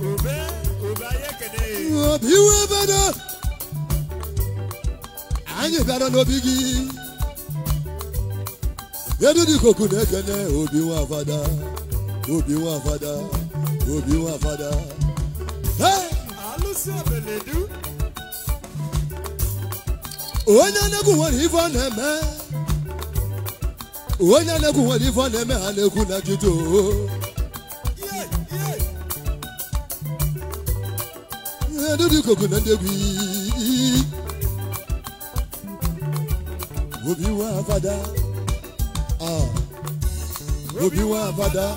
obi iwe bedo anyị bịara n'obi gị edu dị koku na-ekene obi nwa fada obi nwa fada obi nwa fada alụsị obeledu onye nwere ife ọ na-eme onye na-ekwu nwere ife ọ na-eme ha na-ekwu na jụjụ dúdú kòkò náà débi. Obi wá fada, obi wá fada.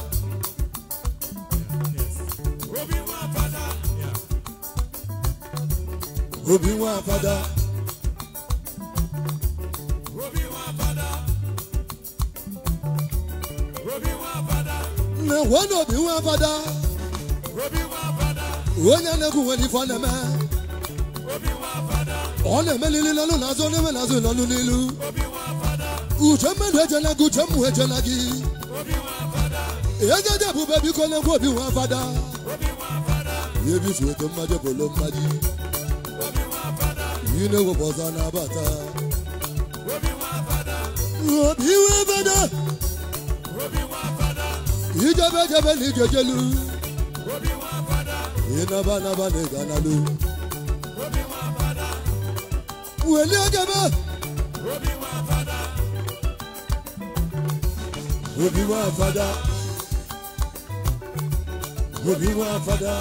Obi wá fada. Na one obi wá fada. onye na-egwu nwere ife ọ na-eme ọ na-emelili n'ọnụ n'azụ ọ na-eme n'azụ n'ilu uche mmadụ ejela gị uche mmụ ejela gị ejeje ebube biko na-egwu obi nwa fada ebifu ego mmaji bolo mmaji yi na-ewepụ ọzọ na-abata obi nwa fada ijebe ejebe na ijejelu inaba naba ne gana lo. obi wọn fada. wẹ̀lẹ́ ọ̀gẹ̀mẹ̀. obi wọn fada. Robi wa fada. Robi wa fada.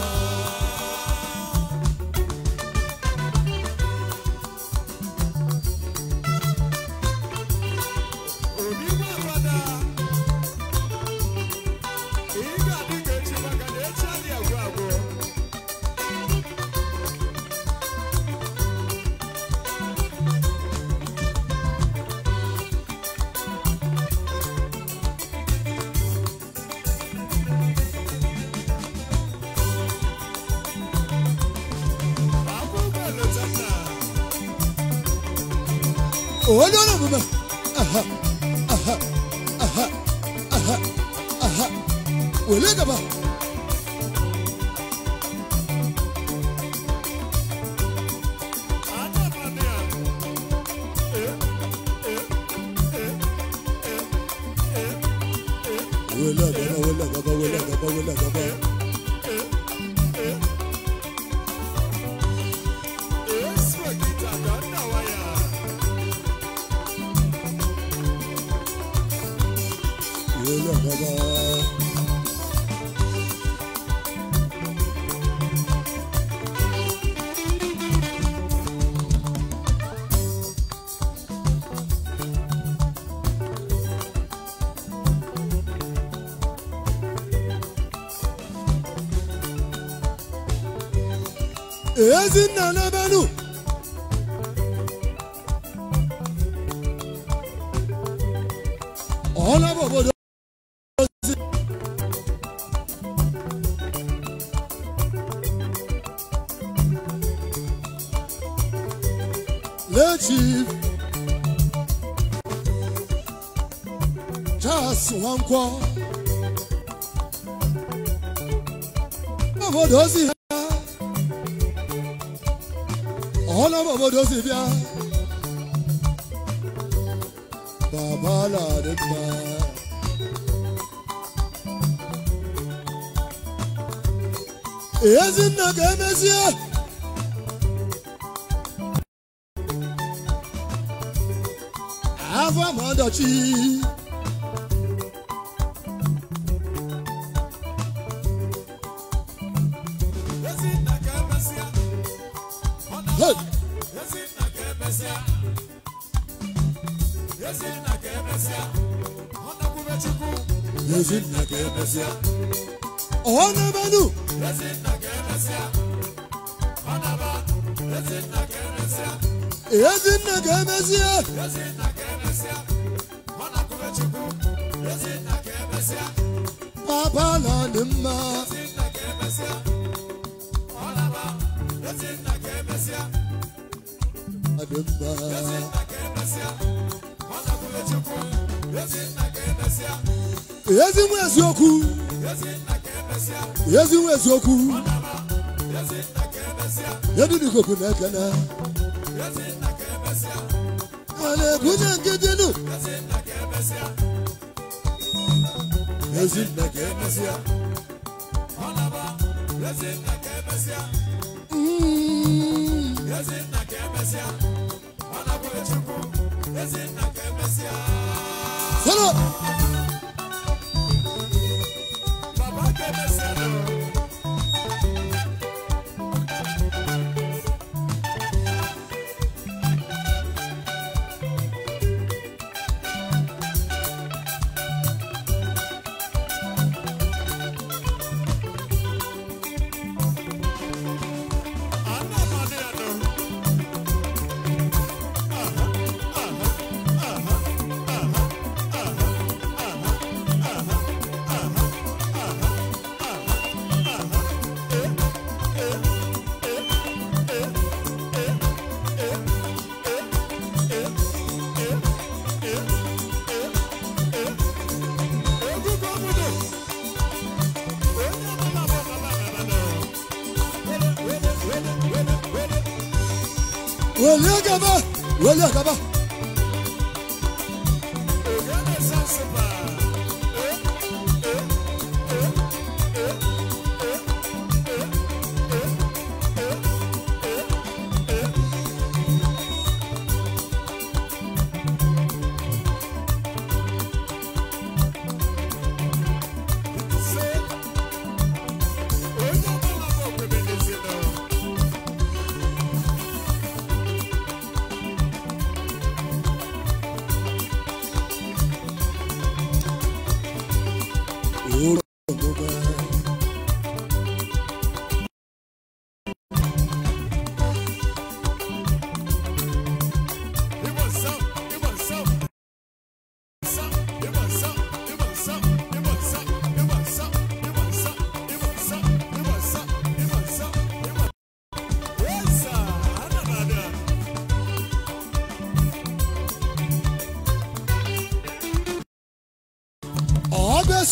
onye ọrụ omume aha aha aha aha aha wele gaba lọ bàbá. èyí sì nana bẹ́ẹ̀ Chief Charles nwankwo obodo ozi ha ọhụla m obodo ozi bịa baba ladị mma ezinna ga-emezie ọdachi ọ na-emenụ Ezinna ga-emezi ya papa la lima ezi eziokwu ezi eziokwu edudikoku na-ekene a na-ebunye nke Ezinne ka emesịa ọlaba ka ka ka hello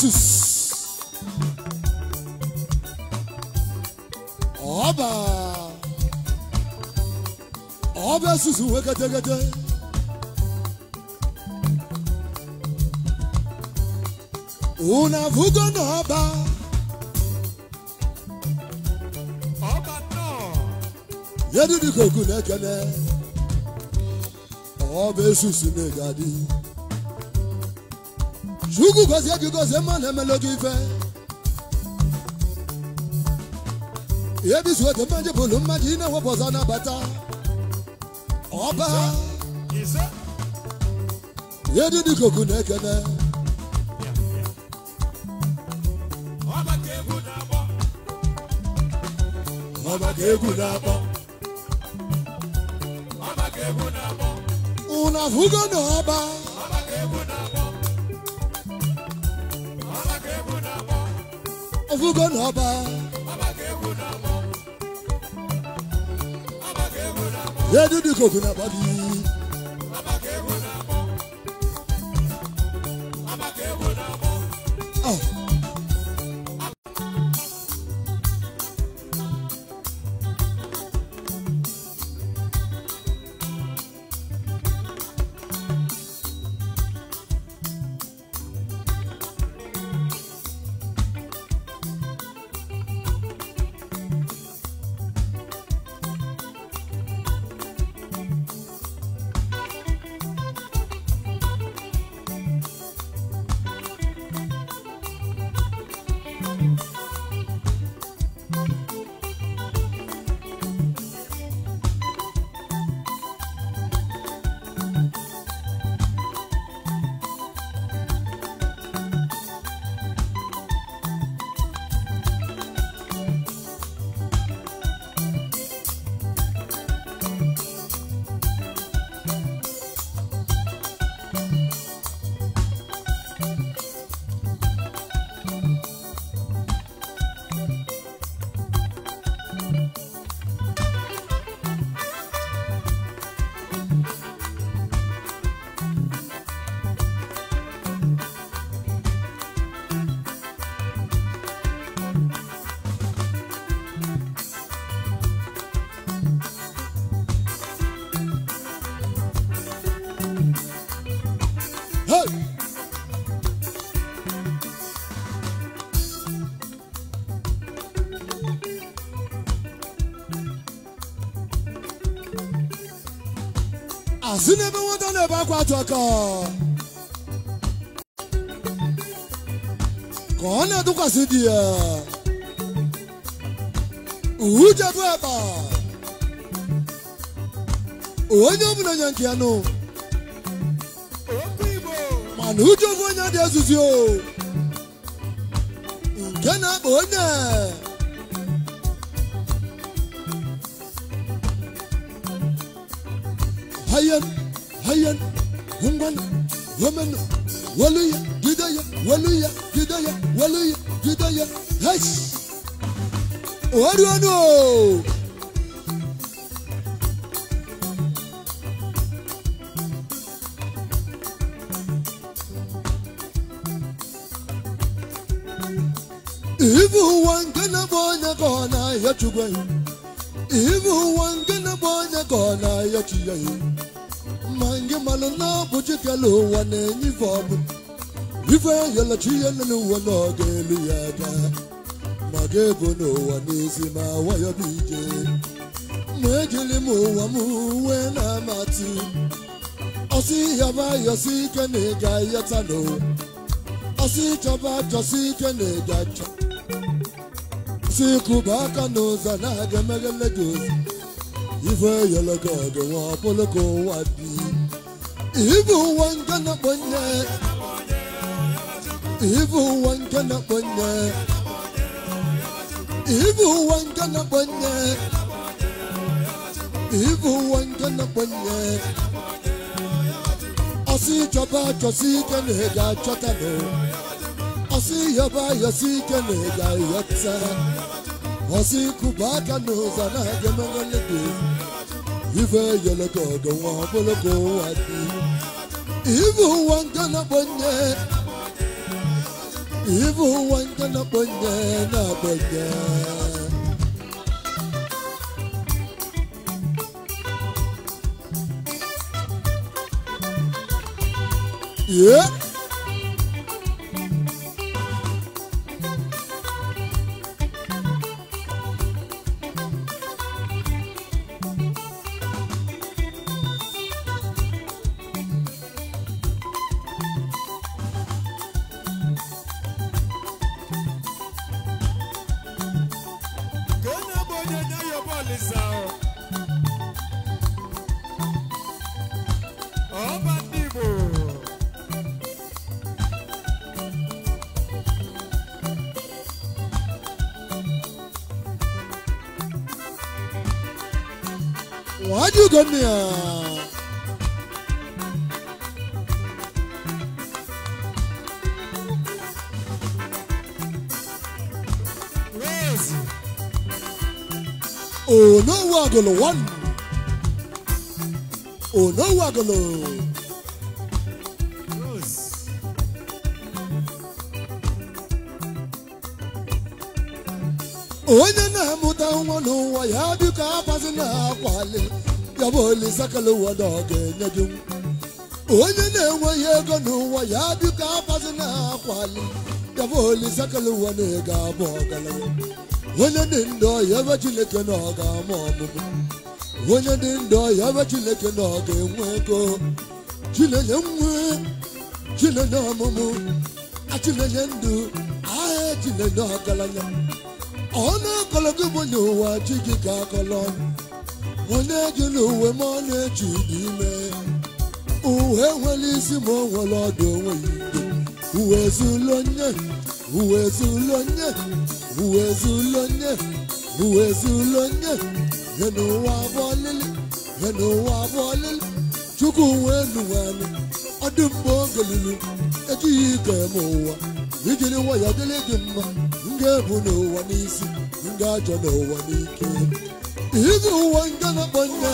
Jesus ọba ọba susu wee kete una vugo n'ọba ọba nnọọ yedidikoku na-ekene ọba esusu na-egadi chukwu gozie gị gozie mmanụ na gị ife ebizuo dị mmadụ bụrụ mmadụ ị na-ewepụ ọzọ na-abata ọba ihe dị n'ikuku na-ekene ọba ka egwu na-akpọ unu afụgo na ọba na ọba edu dị koku na-agba si n'ebe nwata na-ebe akwa atụ aka ka ọ na-atụkwasị di ya ujebu eba onye ọbụla nye nke ya nụ mana ujebu onye dị ezuzi o nke na-akpa onye hayyan ngwana nwere waluya gideya waluya gideya waluya gideya yes oharuano ivu ụwa na-abụ onye ya ivu ụwa nke na-abụ onye ya ya malụ na ọbụ chikelu ụwa na-enye ife ọbụ ife yelachi ihe lele ụwa na elu ya aka ma ga-ebo n'ụwa n'ezi ma wayọ bụ ije ma ejiri m ụwa m uwe na-amatị ọsị yaba yọsị ike na ị ga-ayọta n'ụwa ọsị chọba chọsị ike na ị ga-achọ si kụba aka n'ụzọ na-aga emeghele gị ụzọ ife yọlọ gị ọdụ nwa ọbụlụ ka ụwa bii Ibu ụwa nke na akpọnye ụwa nke na-akpọ Ibu nke na chọba ike na ị achọta nụ Ọsị yọba yọsi ike na ị ga Ọsị Asị aka n'ụzọ na-aga emeghele ife yeleke ọdọ wọn poloko adi ibu wọn gana bonye ibu wọn gana bonye na bonye. Yeah. onye na-amụta nwa n'ụwa ya dịka abazi na-akwali ya bụ Olisakalụ ụwa na ọ ga-enye gị onye na-enweghị ego n'ụwa ya biko afazi na akwali ya bụ Olisakalụ ụwa na ego abụ ọgaranya onye dị ndụ ọya ebe Chineke na ọ ga-ama ọmụmụ onye dị ndụ ọya ebe Chineke na ọ ga-enwe ego Chinenye nwe Chinenye ọmụmụ achinenye ndụ aha Chinenye ọgaranya ọ na-akọlọ gị bụ nye ụwa chi gị ka akọlọ ọnụ onye ji n'uwe ma ọ na-eji n'ime uwe nwere isi ma o nwere ọdụ onwe ya uwe ezulu nye uwe ezulu nye uwe ezulu nye uwe ezulu nye nye n'ụwa abụọ lili nye n'ụwa abụọ lili chukwu wee nuwanụ ọ dị mgbe oge lili ejighị ike m ụwa ijiri nwayọ dịrị gị mma m ga-ebu n'ụwa n'isi m ga-ajọ n'ụwa n'ike Ibu wanga na banya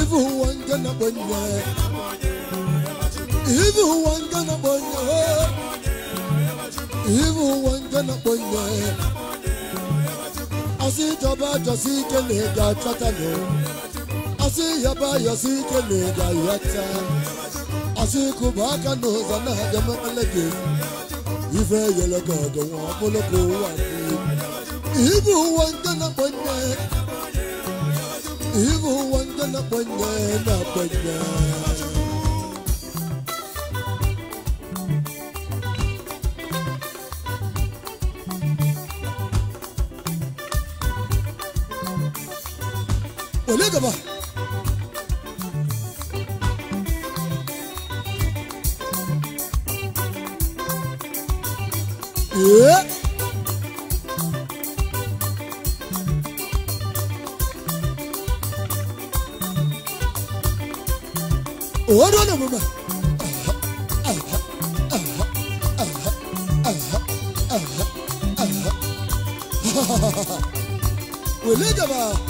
Ibu wanga na banya Ibu na na banya Asi jaba jasi kele ga chatalo Asi yaba yasi kele ga yata Asi Ife Ibu wangana banya Ibu wangana banya na banya Wale Yeah Wele jaba.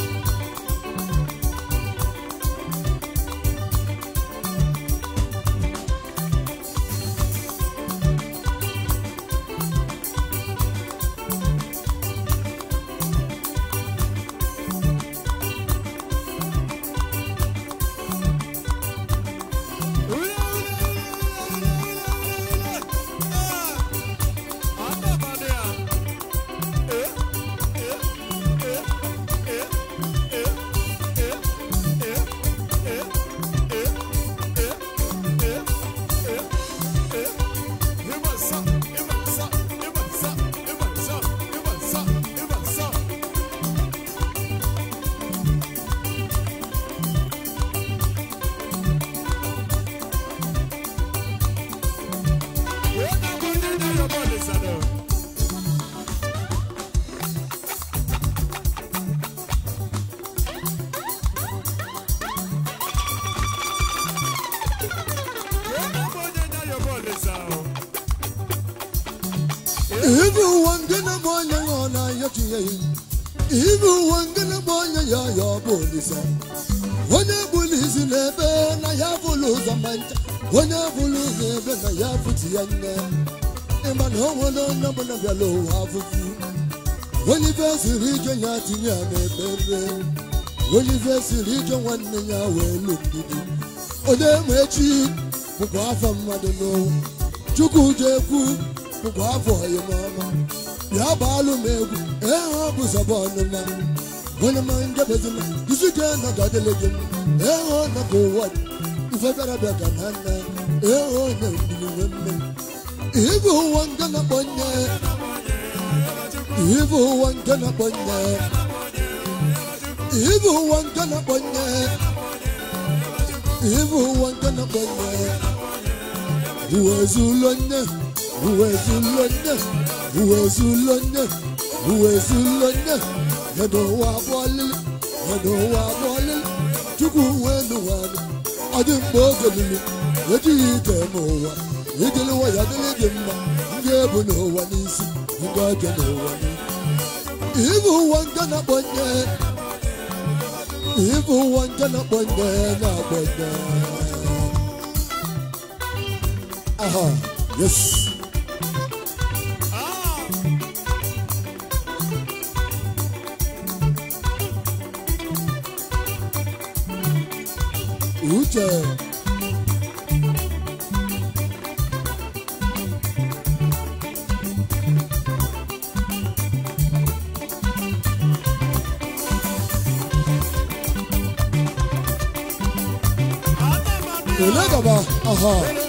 Ibu wangana bonya ngona yachiye Ibu wangana bonya ya ya ọ bolisa Wanya bulisi lebe na ya buluza mancha Wanya buluza lebe na ya futi yanga Imba no wano na bana vyalo hafufu ife siri rijo ya tinye tinya mebebe ife siri rijo nwanne ya wee ma echi welu afọ Ode mwechi Chukwu mmadeno Chukujekwu bụkwa afọ ọyịmọma ya bụ m egwu ee ọ bụ zọba ọnụma onye ma ndebezina isi ka nọgadịlị gị ee ọ nọka ụwa ifegarabịa ka na nna ee ọ na-egbuniwe mme ibu ụwa nke na-akpọ nne ibu ụwa nke na-akpọ nne ibu ụwa nke na-akpọ nne ibu ụwa nke na-akpọ nne uwe zụlọ nye. uwezulonye uwezulonye uwezulonye yọ̀dọ̀ wa bọ́lẹ̀ yọ̀dọ̀ wa bọ́lẹ̀ chukwu wenu wani ọdị mgbe oge lili ejighị ike ma ụwa ijeliwa ya dịrị gị mma ndị ebu n'ụwa n'isi ndị ọjọọ n'ụwa n'isi ụwa nke ibu ụwa nke na-akpọnye na-akpọnye yes Picture. Olé bàbá, aha. Uh -huh.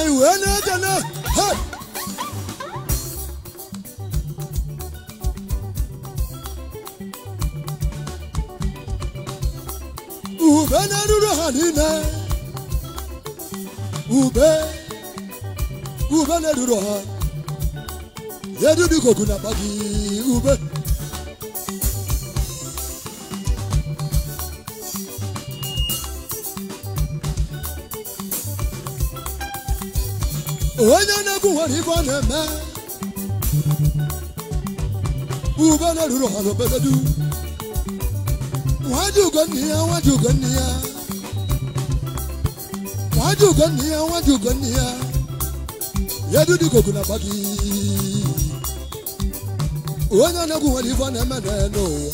anyị wee na-eje na ube na-eruru ha niile ube ube na-eruru ha dị dịka ogu na-akpa gị ube onye na-egwu nwere ibe ọ na-eme ubele ruru ọrụ obedodu nwaji ugonne ya nwaji ugonne ya nwaji ugonne ya nwaji ugonne ya ya du dudigogu na gị. onye na-egwu nwere ibe ọ na-eme n'elu ụwa